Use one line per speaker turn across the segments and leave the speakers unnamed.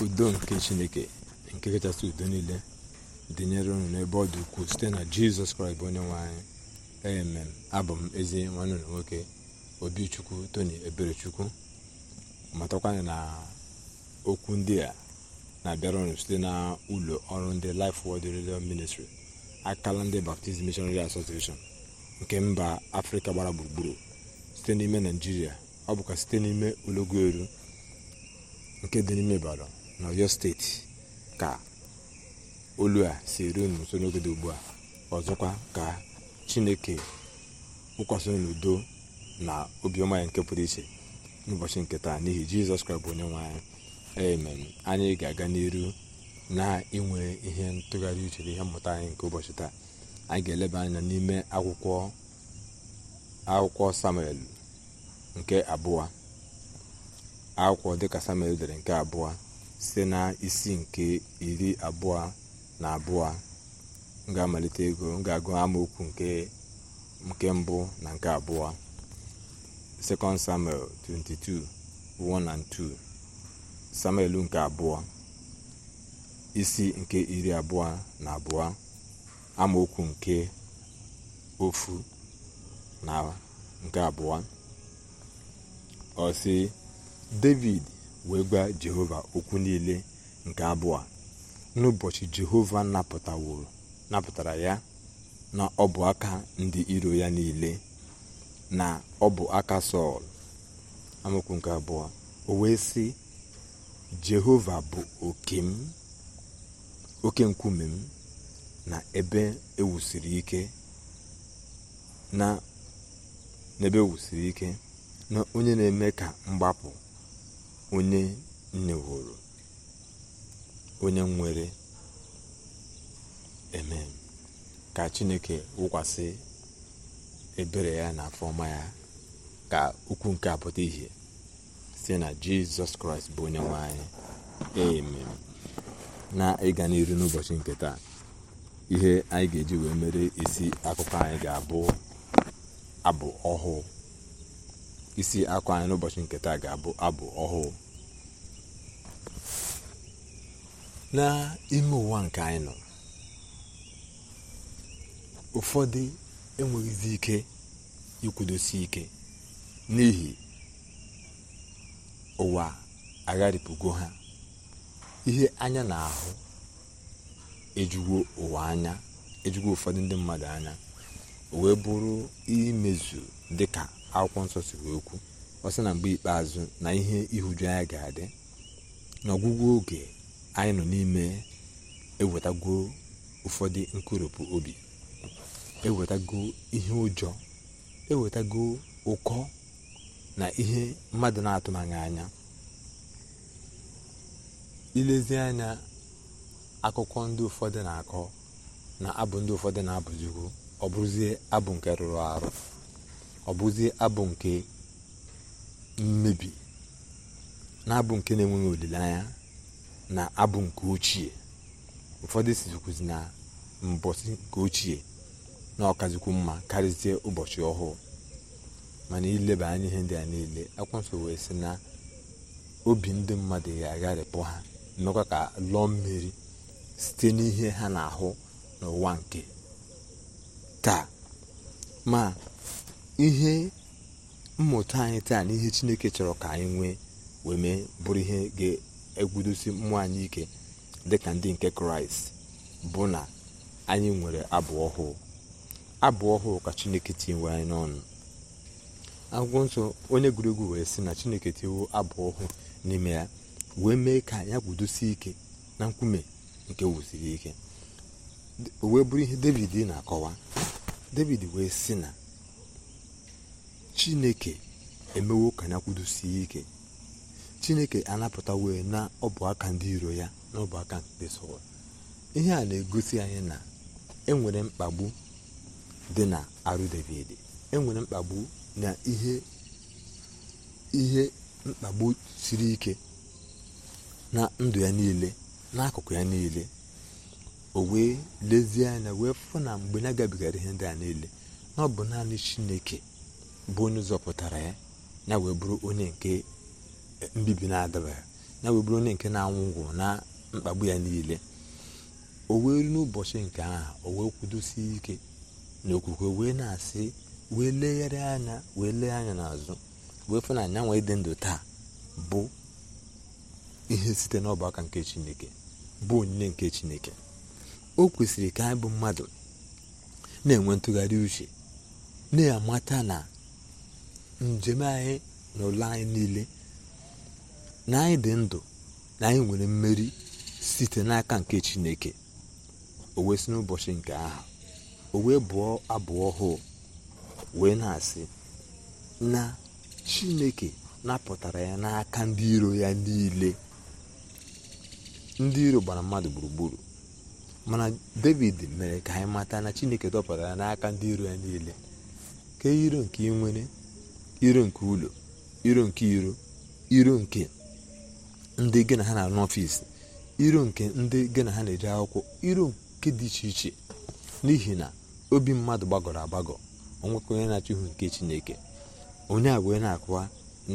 udo nke chineke nke kachasị udo niile dịnyere unu n'ebe ọ dị ukwuu site na jizọs kraịst bụ onye nwe anyị amen abụ m ezi nwanne ụlọ nwoke obichukwu tony eberechukwu matakwanye na okwu ndị a na-abịara ọnụ site na ụlọ ọrụ ndị Life Word Religion Ministry akala ndị Baptist Missionary Association nke mba afrịka gbara gburugburu site n'ime naijiria ọ bụkwa site n'ime olọgoelu nke dị n'ime Ibadan n'ọyọ steeti ka olu a si ruo unu nso ugbu a ọzọkwa ka chineke wụkwasị n'udo na obiọma ya nke pụrụ iche n'ụbọchị nke taa n'ihi jizọs kraịst bụ onye nwe anyị anyị ga-aga n'iru na-inwe ihe ntụgharị uche ihe mmụta anyị nke ụbọchị taa anyị ga-eleba anya n'ime akwụkwọ akwụkwọ samuel nke abụọ akwụkwọ dịka samuel dere nke abụọ site na isi nke iri abụọ na abụọ m ga-amalite ịgụ amaokwu nke mbụ na nke abụọ second samuel 22 1 2 samuel nke abụọ isi nke iri abụọ na abụọ amaokwu nke ofu na nke abụọ ọ david wee gwa jehova okwu niile nke abụọ n'ụbọchị jehova napụtara ya na ọ bụ aka ndị iro ya niile na ọ bụ aka sọl amaokwu nke abụọ o wee sị jehova bụ oke m oke nkume m na ebe ewusiri e ike na onye na-eme ka mgbapụ onye nneworo onye nwere eme ka chineke wụkwasị ebere ya na afọma ya ka ukwu nke pụta ihe site na jizọs kraịst bụ onye nwe anyị eme na ịga n'iru n'ụbọchị nke taa ihe anyị ga-eji wee mere isi akụkọ anyị ga-abụ abụ ọhụụ isi akwa anyị n'ụbọchị nke taa ga-abụ abụ ọhụụ n'ime ụwa nke anyị nọ ụfọdụ enweghịzi ike ikwudosi ike n'ihi ụwa agharịpụgo ha ihe anya na-ahụ ejugo ụwa anya ejugo ụfọdụ ndị mmadụ anya o wee bụrụ imezu dịka akwụkwọ nsọ siri okwu ọ sị na mgbe ikpeazụ na ihe ihuju anya ga-adị n'ọgwụgwụ oge anyị nọ n'ime ewetago ụfọdụ nkoropụ obi ewetago ihe ụjọ ewetago ụkọ na ihe mmadụ na atụmanya anya ilezi anya akụkọ ndị ụfọdụ na-akọ na abụ ndị ụfọdụ na abụzigo ọ bụrụzie abụ nke rụrụ arụ ọ bụzi abụ nke mmebi na abụ nke na-enweghị olileanya na abụ nke ochie ụfọdụ sizikwuzi na mbọsi nke ochie na ọkazikwu mma karịzie ụbọchị ọhụụ mana ileba anya ihe ndị a niile akwanso wee sị na obi ndị mmadụ ga-agharịpụ ha mekwa ka lụọ mmiri site n'ihe ha na-ahụ n'ụwa nke taa ma ihe mmụta anyị taa na ihe chineke chọrọ ka anyị nwee wee mee bụrụ ihe ga-egwudosi mmụọ anyị ike dịka ndị nke kraịst bụ na anyị nwere abụ ọhụụ abụ ọhụụ ka chineke tinyewe n'ọnụ akwụkwọ nsọ onye egwuregwu wee sị na chineke tinyewo abụ ọhụụ n'ime ya wee mee ka ya gwudosie ike na nkume nke wusiri ike wee bụrụ ihe david na-akọwa david wee sị na chineke emewo ka ya kwudosie ike chineke anapụta wee na ọbụaka ndị iro ya na ọbụaka ndị sọl ihe a na-egosi anyị na enwere mkpagbu dị na arụ david enwere mkpagbu na ihe ihe mkpagbu siri ike na ndụ ya niile n'akụkụ ya niile o wee lezie anya wee fụ na mgbe na-agabigara ihe ndị a niile na ọ bụ naanị chineke bụ onye zọpụtara ya ya wee bụrụ onye nke e, mbibi na adaba ya wee bụrụ onye nke na-anwụgwụ na mkpagbu ya niile o wee n'ụbọchị nke aha o wee kwudosie ike na okwukwe wee na-asị wee legharị anya wee lee anya n'azụ wee fụ na anyanwụ ịdị ndụ taa bụ ihe site n'ọgbakọ nke chineke bụ onyinye nke chineke o kwesịrị ka anyị bụ mmadụ na-enwe ntụgharị uche na-amata na njem anyị na ụlọ anyị niile na anyị dị ndụ na anyị nwere mmeri site n'aka nke chineke o wee si n'ụbọchị nke aha o wee bụọ abụọ ọhụụ wee na-asị na chineke napụtara ya n'aka ndị iro ya niile ndị iro gbara mmadụ gburugburu mana david mere ka anyị mata na chineke dọpụtara ya n'aka ndị iro ya niile ka e iro nwere iro nke ụlọ iro nke iro iro nke ndị gị na ha na-arụ n'ọfịs iro nke ndị gị na ha na-eji akwụkwọ iro nke dị iche iche n'ihi na obi mmadụ gbagọrọ agbagọ ọnwekwa onye na-achọ ihu nke chineke onye a wee na-akụwa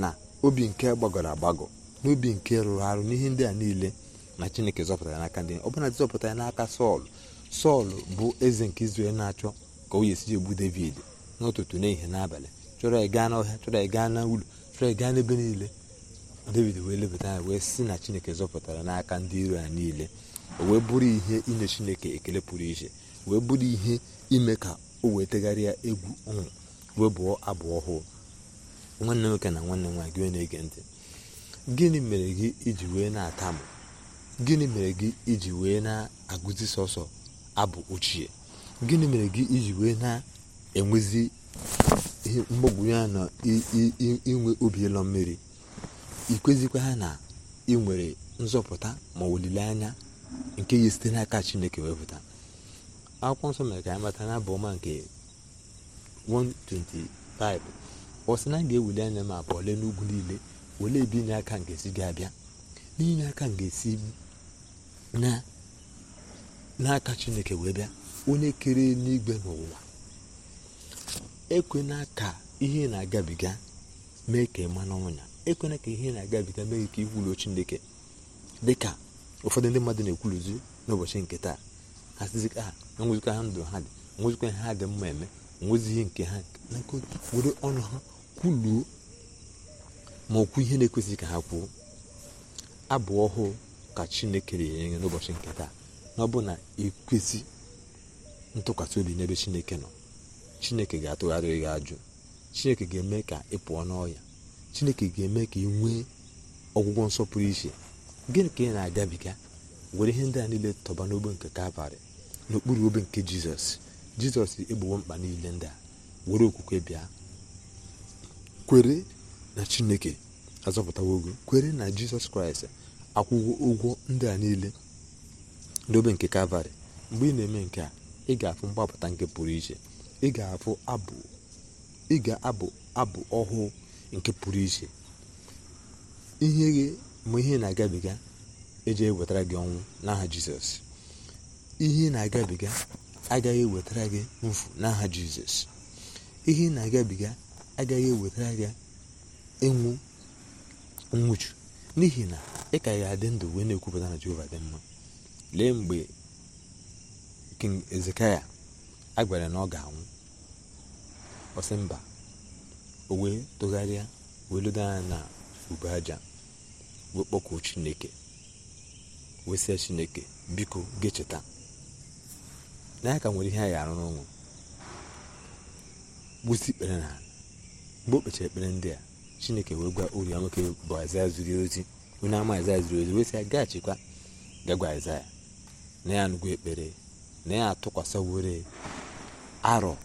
na obi nke gbagọrọ agbagọ obi nke rụrụ arụ n'ihe ndị a niile na chineke zọpụtara n'aka ndị ọbụla zọpụta ya n'aka sọl sọl bụ eze nke izrel na-achọ ka o yesi egbu david n'ụtụtụ n'ehihie n'abalị chọrọ ịga n'ọhịa chọrọ ịga n'ụlọ chọrọ ịga n'ebe niile david wee lebata anya wee si na chineke zọpụtara n'aka ndị iro ya niile o wee bụrụ ihe inye chineke ekele pụrụ iche wee bụrụ ihe ime ka o wee tegharịa egwu ọṅụ wee bụọ abụ ọhụụ nwanne nwoke na nwanne nwaanyị gị na-ege ntị gịnị mere gị iji wee na-atamụ gịnị mere gị iji wee na-agụzi sọsọ abụ ochie gịnị mere gị iji wee na-enwezi mgbagwoju ya na inwe obi ịlọ mmiri ikwezikwa ha na ị nwere nzọpụta ma olileanya nke ya site n'aka chineke wee wepụta akwụkwọ nsọ mere ka ya mata na abụ ọma nke 125 ọ sị na a ga-ewuli anya ma abụ ole n'ugwu niile olee ebe inye aka nke si ga-abịa n'inye aka n'aka chineke wee bịa onye kere n'igwe n'ụwa ekwena ka ihe na-agabiga mee ka ịma n'ọnwụ ekwena ka ihe na-agabiga mee ka ikwulu Chineke dị ka ụfọdụ ndị mmadụ na-ekwuluzi n'ụbọchị nke taa ha sizika ha enwezikwa ha ndụ ha dị enwezikwa ihe ha dị mma eme enwezighị nke ha na were ọnụ ha kwuluo ma okwu ihe na-ekwesịghị ka ha kwuo abụ ọhụụ ka chineke na-enye n'ụbọchị nke taa na ọ bụ na ekwesị ntụkwasị obi n'ebe chineke nọ chineke ga-atụgharị gị ajụ chineke ga-eme ka ị pụọ n'ọya chineke ga-eme ka ị nwee ọgwụgwọ nsọpụrụ iche gịnị ka ị na-agabiga were ihe ndị a niile tọba n'obe nke kalvarị n'okpuru obe nke jizọs jizọs egbowo mkpa niile ndị a were okwukwe bịa kwere na chineke azọpụtawo ogo kwere na jizọs kraịst akwụgo ụgwọ ndị a niile n'obe nke kalvarị mgbe ị na-eme nke a ị ga-afụ mgbapụta nke pụrụ iche ị ga abụ abụ ị ga-abụ abụ ọhụụ nke pụrụ iche ihe gị ma ihe na-agabiga eji ewetara gị ọnwụ n'aha jizọs ihe na-agabiga agaghị ewetara gị mfu n'aha jizọs ihe na-agabiga agaghị ewetara gị ịnwụ nwụchu n'ihi na ị ka ga-adị ndụ wee na-ekwupụta na jehova dị mma lee mgbe king ezekaya a gwara na ọ ga-anwụ ọsị mba o wee tụgharịa wee lodo anya na ube aja wee kpọkuo chineke wee sie chineke biko gecheta na ya ka nwere ihe a ya arụ n'ụmụ gbusi ikpere na mgbe o kpechara ekpere ndị a chineke wee gwa ori nwoke bụ aịzaya zuru ozi onye ama aịzaya zuru ozi wee sị ya gaghachikwa gagwa aịzaya na ya anụgo ekpere na ya atụkwasị atụkwasịwore arọ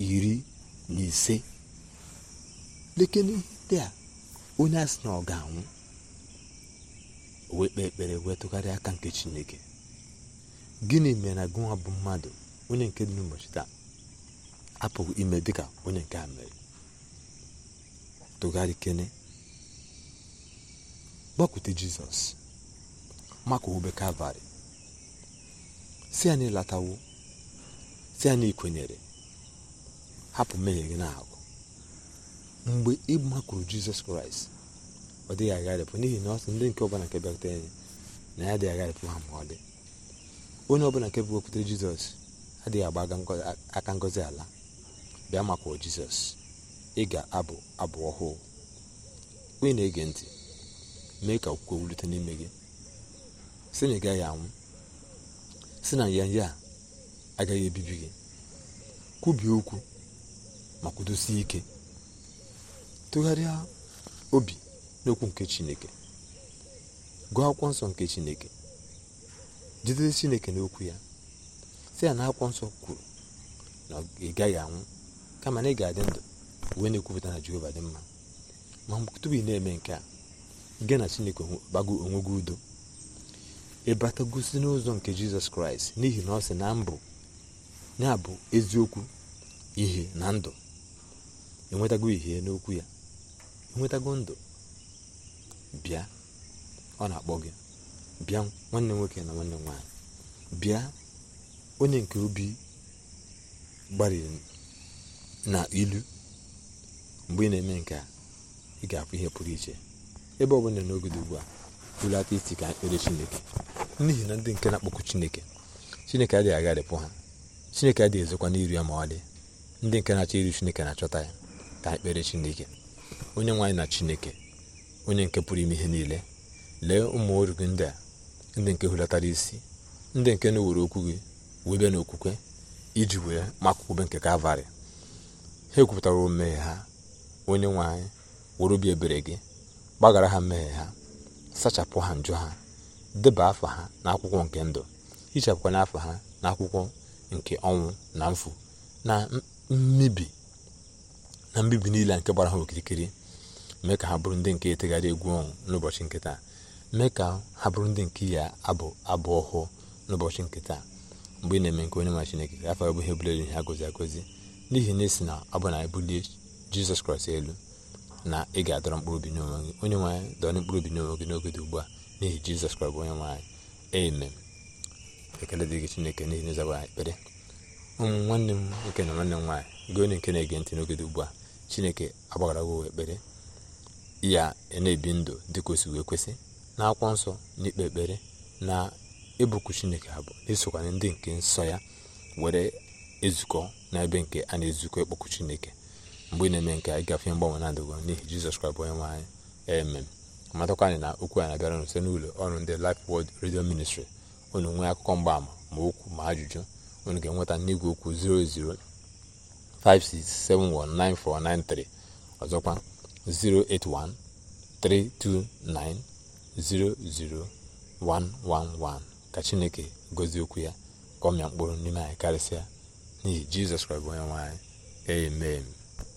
iri na ise leke ihe a onye asị na ọ ga-anwụ wee kpee ekpere wee tụgharịa aka nke chineke gịnị mere na gụnwa bụ mmadụ onye nke dị n'ụbọchị taa apụghị ime dị ka onye nke a mere tụgharị kene gbakwute jizọs maka obe kalvarị si na latawo site na ikwenyere hapụ mmehie gị na-agụ mgbe ị makwuru jizọs kraịst ọ dịghị agharịpụ n'ihi na ọ sị ndị nke ọbụla nke bịakwutere ya na ya adịghị agharịpụ ha ma ọ dị onye ọbụla nke bụwekwutere jizọs adịghị agba aka ngozi ala bịa makwuo jizọs ị ga-abụ abụ ọhụụ onye na-ege ntị mee ka okwukwe wulite n'ime gị sị na ị gaghị anwụ sị na ya ya agaghị ebibi gị kwubie okwu ma kwudosie ike tụgharịa obi n'okwu nke chineke gụọ akwụkwọ nsọ nke chineke jidere chineke n'okwu ya sị ya na akwụkwọ nsọ kwuru na ị gaghị anwụ kama na ị ga-adị ndụ wee na-ekwupụta na jehova dị mma ma tupu ị na-eme nke a gị na chineke gbago onwe gị udo ịbatagosi n'ụzọ nke jizọs kraịst n'ihi na ọ sị na mbụ ya bụ eziokwu ihe na ndụ enwetago ihe n'okwu ya enwetago ndụ bịa ọ na-akpọ gị bịa nwanne nwoke na nwanne nwaanyị bịa onye nke obi gbariri na ilu mgbe ị na-eme nke a ị ga-afụ ihe pụrụ iche ebe ọ bụla n'oge ugbu a hulata isi ka chineke n'ihi na ndị nke na akpọkụ chineke chineke adịghị agharịpụ ha chineke adịghị ezokwa n'iru ya ma ọlị ndị nke na-achọ iri chineke na-achọta ya ka anyị chineke onye nwaanyị na chineke onye nke pụrụ ime ihe niile lee ụmụ oru gị ndị a ndị nke hulatara isi ndị nke na-ewere okwu gị webe na okwukwe iji wee makwụkwebe nke kalvarị ha ekwupụtara mmehie ha onye nwaanyị were obi ebere gị gbagara ha mmeghe ha sachapụ ha njọ ha deba afọ ha n'akwụkwọ nke ndụ hichapụkwa n'afọ ha n'akwụkwọ nke ọnwụ na mfu na mbibi na mbibi niile nke gbara ha okirikiri mee ka ha bụrụ ndị nke etegharị egwu ọnwụ n'ụbọchị nke taa mee ka ha bụrụ ndị nke ya abụ abụ ọhụụ n'ụbọchị nke taa mgbe ị na-eme nke onye nwa chineke ka afọ bụ ihe bụla gozi agozi n'ihi na esi na ọ bụ na ebulie jizọs kraịst elu na ị ga-adọrọ mkpụrụ obi n'onwe gị onye nwaanyị dọrọ mkpụrụ obi n'onwe gị n'oge dị ugbu a n'ihi jizọs kraịst bụ onye nwaanyị amen ekele dịghị chineke n'ihi n'ịzaba ekpere ụmụ nwanne m nwoke na nwanne m nwaanyị gị onye nke na-ege ntị n'oge dị ugbu a chineke agbaghara gị ekpere ya na-ebi ndụ dị ka o wee kwesị na akwụkwọ nsọ na ikpe ekpere na ịbụkwu chineke abụ na-esokwana ndị nke nsọ ya were ezukọ na ebe nke a na-ezukọ ịkpọkụ chineke mgbe ị na-eme nke a ịgafe mgbanwe na-adịgo n'ihi jizọs kraịst bụ onye nwe anyị matakwa anyị na okwu anyị na-abịara n'ụlọ ọrụ ndị lif wod redio Ministry unu nwee akụkọ mgbaama ma okwu ma ajụjụ unu ga-enweta n'igwe okwu 00567199493 ọzọkwa 08132900111 ka chineke gozie okwu ya ka ọ mịa mkpụrụ n'ime anyị karịsịa n'ihi jizọs kraịst bụ onye amen